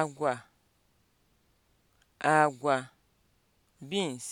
agwa agwa beans